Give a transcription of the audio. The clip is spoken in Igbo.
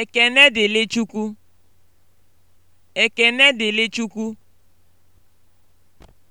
Ekene dịrị Chukwu. Ekene dịrị Chukwu.